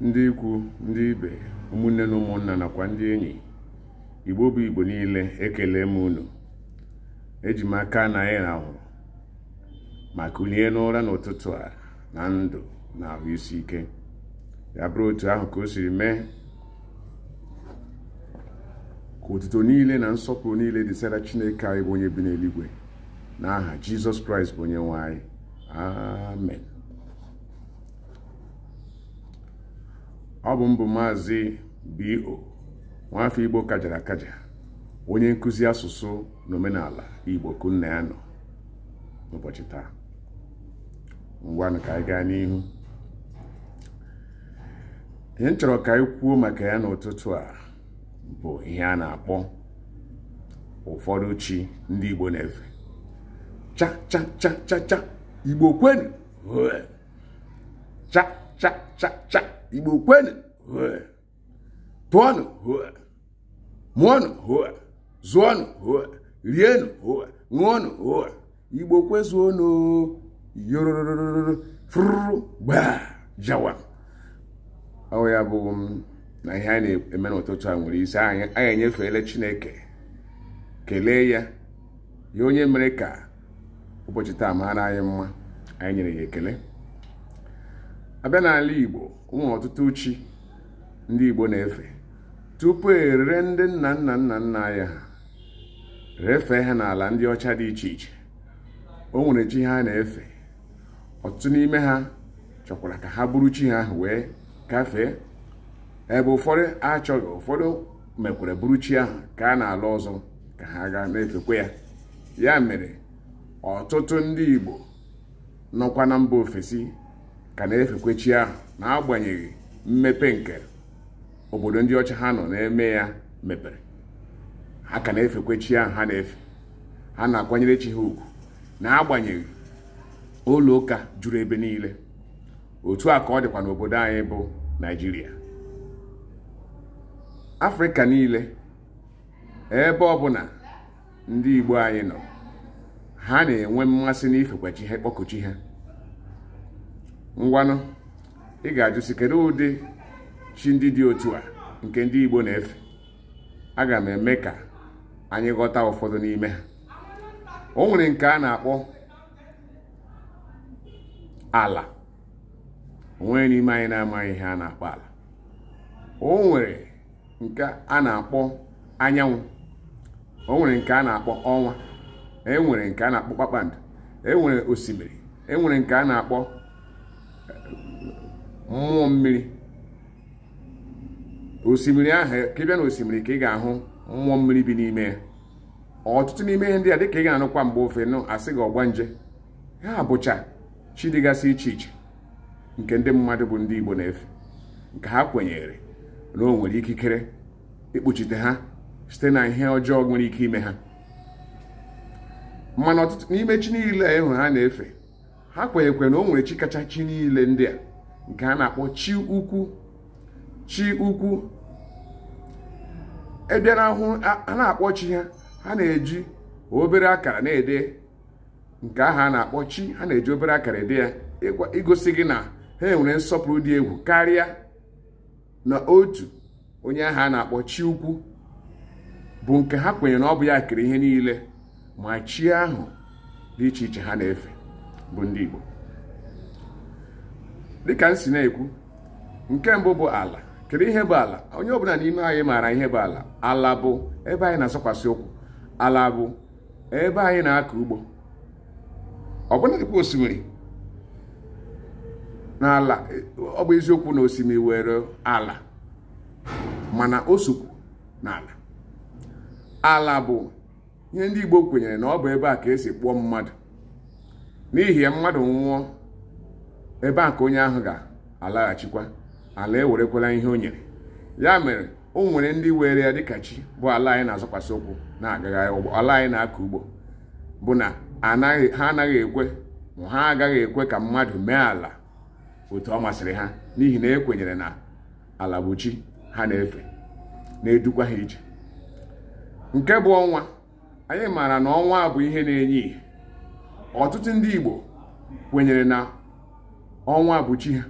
ndị ikwu ndị ibe ụmụnne na ụmụnna nakwa ndị enyi igbo bụ igbo niile ekele m unu eji m aka na anyị rahụrụ ma kulie n'ụra n'ụtụtụ a na ndụ na ahụ isi ike ya bụrụ otu ahụ ka o siri mee ka otuto niile na nsọpụrụ niile dịsara chineke anyị bụ onye bi n'eluigwe n'aha jizọs kraịst bụ onye nwanyị. ọ bụ mbụ maazị B.O. nwafọ Igbo kajara akaja onye nkụzi asụsụ na omenala Igbo kunna ya nọ n'ụbọchị taa ngwanụ ka anyị gaa n'ihu ihe m chọrọ ka anyị kwuo maka ya n'ụtụtụ a bụ ihe a na-akpọ ụfọdụ chi ndị Igbo na-efe cha cha cha cha cha Igbo cha cha igbo kwenụ pụọnụ mụọnụ zụọnụ rienụ ṅụọnụ igbo kwezuonụ yororororo fụrụ jawa ọ ya bụ na ihe a na-eme n'ụtụtụ a nwere isi anyị enyefeela chineke kelee ya ya onye mere ka ụbọchị taa mara anyị mma anyị nyere ya ekele abịa n'ala igbo ụmụ ọtụtụ chi ndị igbo na-efe tupu erere ndị nna nna nna nna anya ha refee ha n'ala ndị ọcha dị iche iche o nwere chi ha na-efe ọtụtụ n'ime ha chọkwara ka ha bụrụ chi ha ahụ wee gafee ebe ụfọdụ achọghị ụfọdụ mekwere bụrụ chi ahụ ka a na-ala ọzọ ka ha gaa na-efekwa ya ya mere ọtụtụ ndị igbo nọkwa na mba ofesi ka na-efekwe ahụ n'agbanyeghị mmepe nke obodo ndị ọcha ha nọ na-eme ya mepere ha ka na efekwechi ahụ ha na-efe ha na-akwanyere chi ha ugwu n'agbanyeghị ụlọ ụka juru ebe niile otu a ka ọ dịkwa n'obodo anyị bụ Naịjirịa Afrịka niile ebe ọ ọbụla ndị Igbo anyị nọ ha na-enwe mmasị n'ifekwachi ha kpọkụchi ha ngwanụ ị ga-ajụsi kedu ụdị chi ndị dị otu a nke ndị Igbo na-efe aga m eme ka anyị ghọta ụfọdụ n'ime ha o nwere nke a na-akpọ ala onwe n'ime anyị na-amaghị ihe a na-akpọ ala o nwere nke a na-akpọ anyanwụ o nwere nke a na-akpọ ọnwa e nwere nke a na-akpọ kpakpando e nwere osimiri e nwere nke a na-akpọ mmụọ mmiri osimiri ahụ ka ị bịa na osimiri ka ị ga-ahụ mmụọ mmiri bi n'ime ya ọtụtụ n'ime ihe ndị a dịka ị ga-anụkwa mgbe ofe nụ asị gị ọgba nje ha bụcha chi dịgasị iche iche nke ndị mmadụ bụ ndị Igbo na-efe nke ha kwenyere na ọ nwere ikikere ikpuchite ha site na ihe ọjọọ nwere ike ime ha mana ọtụtụ n'ime chi niile ịhụ ha na-efe ha kwenyekwe na o nwere chi kacha chi niile ndị a nke a na-akpọ chi ukwu chi ukwu e ahụ a na-akpọ chi ha ha na-eji obere akara na-ede nke ahụ a na-akpọ chi ha na-eji obere akara ede ya igosi gị na ha nwere nsọpụrụ dị egwu karịa na otu onye ahụ a na-akpọ chi ukwu bụ nke ha kwenyere na ọ bụ ya kere ihe niile ma chi ahụ dị iche iche ha na-efe bụ ndị Igbo dịka m si na-ekwu nke mbụ bụ ala kedu ihe bụ ala onye ọbụla n'ime anyị maara ihe bụ ala ala bụ ebe anyị na-asọkwasị ụkwụ ala bụ ebe anyị na-akọ ugbo ọbụna dịkwa osimiri na ala ọ bụ eziokwu na osimiri were ala mana o sokwu na ala ala bụ ihe ndị Igbo kwenyere na ọ bụ ebe a ka esi kpụọ mmadụ n'ihi ya mmadụ nwụọ ebe a ka onye ahụ ga-alaghachikwa ala ewerekwala ihe o nyere ya mere o nwere ndị were ya dịka chi bụ ala anyị na-azọkwasị ụkwụ na-agagharị ụgbọ ala anyị na-akọ ugbo bụ na ha anaghị ekwe ma ha agaghị ekwe ka mmadụ mee ala otu ọ masịrị ha n'ihi na ekwenyere na ala bụ chi ha na-efe na-edukwa ha ije nke bụ ọnwa anyị maara na ọnwa bụ ihe na-enye ihe ọtụtụ ndị Igbo kwenyere na ọnwa bụ chi ha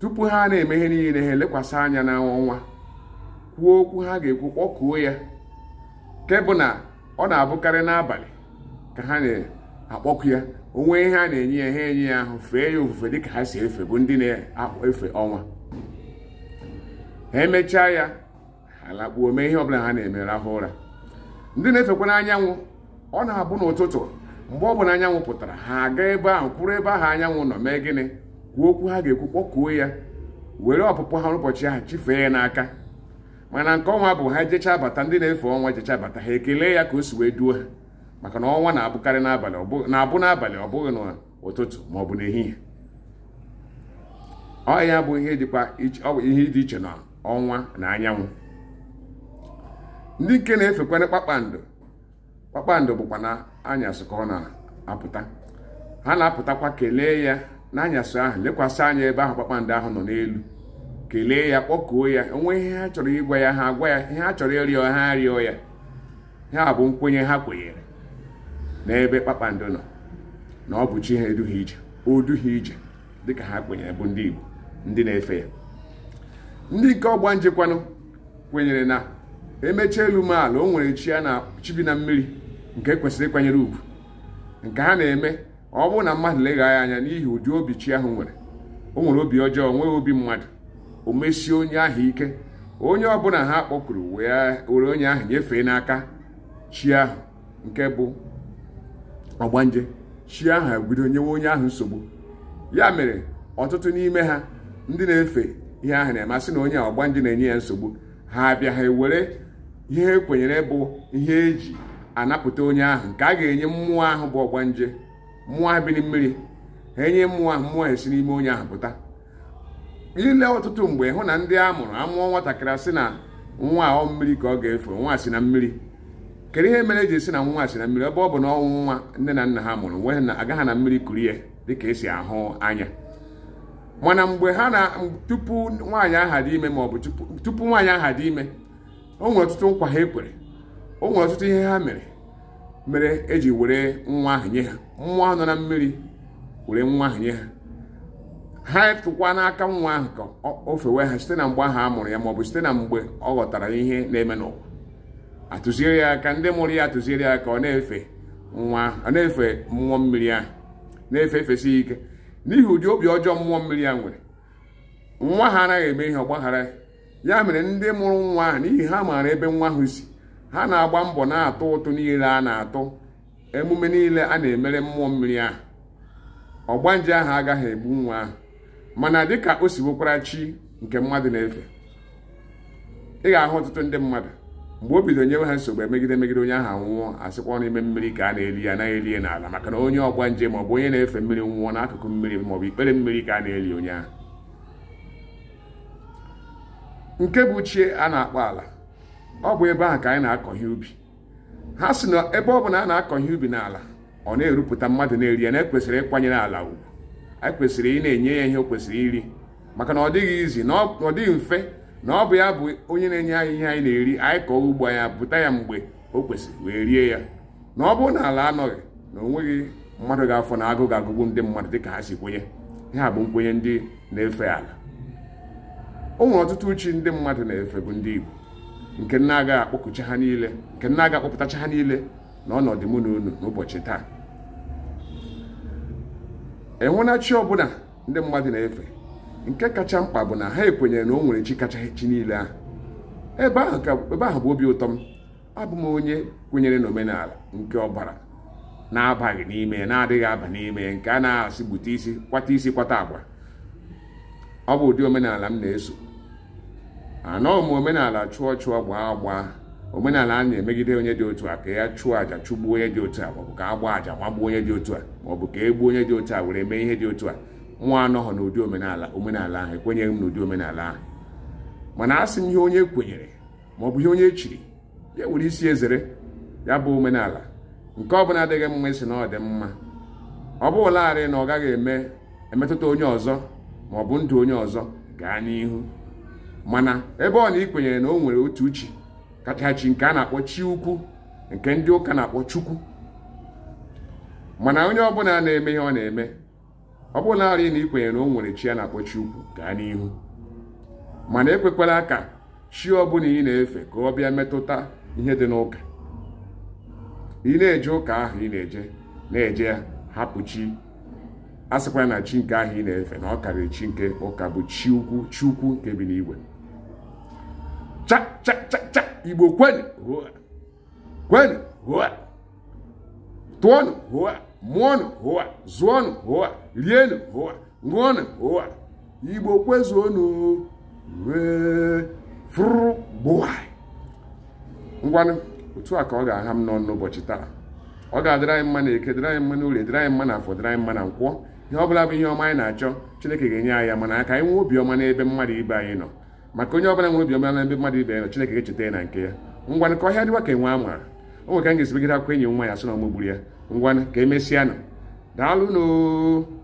tupu ha na-eme ihe niile ha elekwasị anya na ọnwa kwuo okwu ha ga-ekwu kpọkuo ya nke bụ na ọ na-abụkarị n'abalị ka ha na-akpọku ya onwe ihe a na-enye ya ha enye ya ahụ fee ya ofufe dịka ha si efe bụ ndị na-efe ọnwa ha emechaa ya ha lakpuo mee ihe ọbụla ha na-eme rahụ ụra ndị na-efekwa n'anyanwụ ọ na-abụ n'ụtụtụ mgbe ọ bụla anyanwụ pụtara ha aga ebe ahụ kwụrụ ebe ahụ anyanwụ nọ mee gịnị kwuo okwu ha ga-ekwu kpọkuo ya were ọpụpụ ha n'ụbọchị ahụ chifee ya n'aka mana nke ọnwa bụ ha jecha bata ndị na-efe ọnwa jechaa bata ha ekelee ya ka o si wee duo ha maka na ọnwa na-abụkarị n'abalị na-abụ n'abalị ọ bụghị n'ụtụtụ ma ọ bụ n'ehihie ọ ya bụ ihe dịkwa ihe dị iche na ọnwa na anyanwụ ndị nke na-efekwana kpakpando kpakpando bụkwa na anyasị ka ọ na-apụta ha na-apụtakwa kelee ya n'anyasị ahụ lekwasị anya ebe ahụ kpakpando ahụ nọ n'elu kelee ya kpọkuo ya onwe ihe ha chọrọ ịgwa ya ha agwa ya ihe ha chọrọ ịrịọ ha arịọ ya ha bụ nkwenye ha kwenyere n'ebe kpakpando nọ na ọ bụ chi ha eduhie ije o duhie ije dịka ha kwenyere bụ ndị Igbo ndị na-efe ya ndị nke ọgba njekwanụ kwenyere na emecha elu m ala o nwere chi bi na mmiri nke kwesịrị ịkwanyere ugwu nke ha na-eme ọ bụrụ na mmadụ legha anya n'ihi ụdị obi chi ahụ nwere o nwere obi ọjọọ nwee obi mmadụ o mesie onye ahụ ike onye ọbụla ha kpọkuru were onye ahụ nyefee n'aka chi ahụ nke bụ ọgbanje chi ahụ ebido nyewe onye ahụ nsogbu ya mere ọtụtụ n'ime ha ndị na-efe ihe ahụ na-emasị na onye ọgbanje na-enye ya nsogbu ha abịa ha ewere ihe ekwenyere bụ ihe eji anapụta onye ahụ nke a ga-enye mmụọ ahụ bụ ọgbanje mmụọ ahụ biri mmiri ha enye mmụọ ahụ mmụọ esi n'ime onye ahụ pụta ile ọtụtụ mgbe hụ na ndị a mụrụ amụọ nwatakịrị si na nwa ọ mmiri ka ọ ga-efe nwa si na mmiri kedu ihe mere eji esi na nwa si na mmiri ebe ọ bụ na ọnwụ nwa nne na nna ha mụrụ nwe na agaghị na mmiri kurie ya dịka esi ahụ anya mana mgbe ha na tupu nwaanyị aha dị ime maọbụ tupu nwaanyị aha dị ime o nwere ọtụtụ nkwa ha ekwere o nwere ọtụtụ ihe ha mere mere eji were nwa ahụ nye ha nwa nọ na mmiri were nwa ahụ nye ha ha tụkwa n'aka nwa ahụ ka o fewe ha site na mgbe ahụ a mụrụ ya maọbụ site na mgbe ọ ghọtara ihe na-eme n'ụwa atụziere ya aka ndị mụrụ ya atụziere ya ka ọ na-efe nwa ọ na-efe mmụọ mmiri ahụ na-efe efesi ike n'ihi ụdị obi ọjọọ mmụọ mmiri ya nwere nwa ha anaghị eme ihe ọgbaghara ya mere ndị mụrụ nwa ahụ n'ihi ha maara ebe nwa ahụ si ha na-agba mbọ na-atụ ụtụ niile a na-atụ emume niile a na-emere mmụọ mmiri ahụ ọgbanje ahụ agaghị egbu nwa ahụ mana dịka o si chi nke mmadụ na-efe ị ga-ahụ ọtụtụ ndị mmadụ mgbe o bido nyewe ha nsogbu emegide megide onye ahụ nwụọ asịkwa n'ime mmiri ka a na-eri ya na-eri ya n'ala maka na onye ọgbanje maọbụ onye na-efe mmiri nwụọ n'akụkụ mmiri maọbụ ikpere mmiri ka a na-eli onye ahụ nke bụ chie a na-akpọ ala ọ bụ ebe ahụ ka anyị na-akọ ihe ubi ha si na ebe ọ bụla a na-akọ ihe ubi n'ala ọ na-erupụta mmadụ na-eri ya na ekwesịrị ịkwanyere ala ugwu anyị kwesịrị ị na-enye ya ihe o kwesịrị iri maka na ọ dịghị izi na ọ dịghị mfe na ọ bụ ya bụ onye na-enye anyị ihe anyị na-eri anyị kọọ ugbo anyị bụta ya mgbe o kwesịrị wee rie ya na ọ bụrụ na ala anọghị na onweghị mmadụ ga-afọ na agụ ga-agụgbu ndị mmadụ dịka ha si kwenye ha bụ nkwenye ndị na-efe ala o nwere ọtụtụ uchi ndị mmadụ na-efe bụ ndị Igbo nke nna agaghị akpọkuchi ha niile nke nna agaghị akpọpụtachi ha niile na ọnọdụ mụ na unu n'ụbọchị taa enwena chi ọbụla ndị mmadụ na-efe nke kacha mkpa bụ na ha ekwenyere na o nwere chi kacha chi niile ahụ ebe ahụ bụ obi ụtọ m abụ m onye kwenyere n'omenala nke ọbara na-abaghị n'ime na-adịghị aba n'ime nke a na-asị gbute isi kwata isi kwata agwa ọ bụ ụdị omenala m na-eso anọghị ah, m omenala chụọ chụọ gbaa agba omenala a na-emegide onye dị otu a ka ya chụọ aja chụgbuo onye dị otu a maọbụ ka a gbaa àjà nwagbuo onye dị otu a maọbụ ka e gbuo onye dị otu a were mee ihe dị otu a nwa anọghị n'ụdị omenala omenala ahụ ekwenyeghị m n'ụdị omenala ahụ mana a sị m ihe onye kwenyere maọbụ ihe onye echiri ya nwere isi ezere ya bụ omenala nke ọ bụla adịghị mma isi na ọ dị mma ọ bụlarị na ọ gaghị eme emetụta onye ọzọ maọbụ ndụ onye ọzọ gaa n'ihu mana ebe ọ na ị na o nwere otu uchi kachachi nke a na-akpọ chi ukwu nke ndị ụka na-akpọ chukwu mana onye ọbụla na-eme ihe ọ na-eme ọ bụla arị na ikwenyere na o nwere chi a na-akpọ chi ukwu gaa n'ihu mana ekwekwala ka chi ọbụla ị na-efe ka ọ bịa metụta ihe dị n'ụka ị na-eje ụka ahụ ị na-eje na-eje ya hapụ chi a sịkwara na chi nke ahụ ị na-efe na ọ karịrị chi nke ụka bụ chi ukwu chi ukwu nke bi n'igwe cha cha cha igbo kwenu hụa kwenu hụa tụọnụ hụa mụọnụ hụa zụọnụ hụa rienụ hụa ṅụọnụ hụa igbo kwezuonụ wee fụrụ gbụwai ngwanụ otu a ka ọ ga-aha m n'ọnụ ụbọchị taa ọ ga-adịrị anyị mma na eke dịrị anyị mma na orie dịrị anyị mma na afọ dịrị anyị mma na nkwọ ihe ọ bụla bụ ihe ọma anyị na-achọ chineke ga-enye anyị ya mana aka anyị nwee obi ọma n'ebe mmadụ ibe anyị nọ maka onye ọbụla nwere obiọma na ndị mmadụ ibe ya na Chineke echeta ya na nke ya ngwanụ ka ọhịa dịwa ka enwe ama o nwere ka m ga-esibegide akwụkwọ enyi nwa ya sị na ọmụgburu ya ngwanụ ka emesịanụ daalụ daalụnụ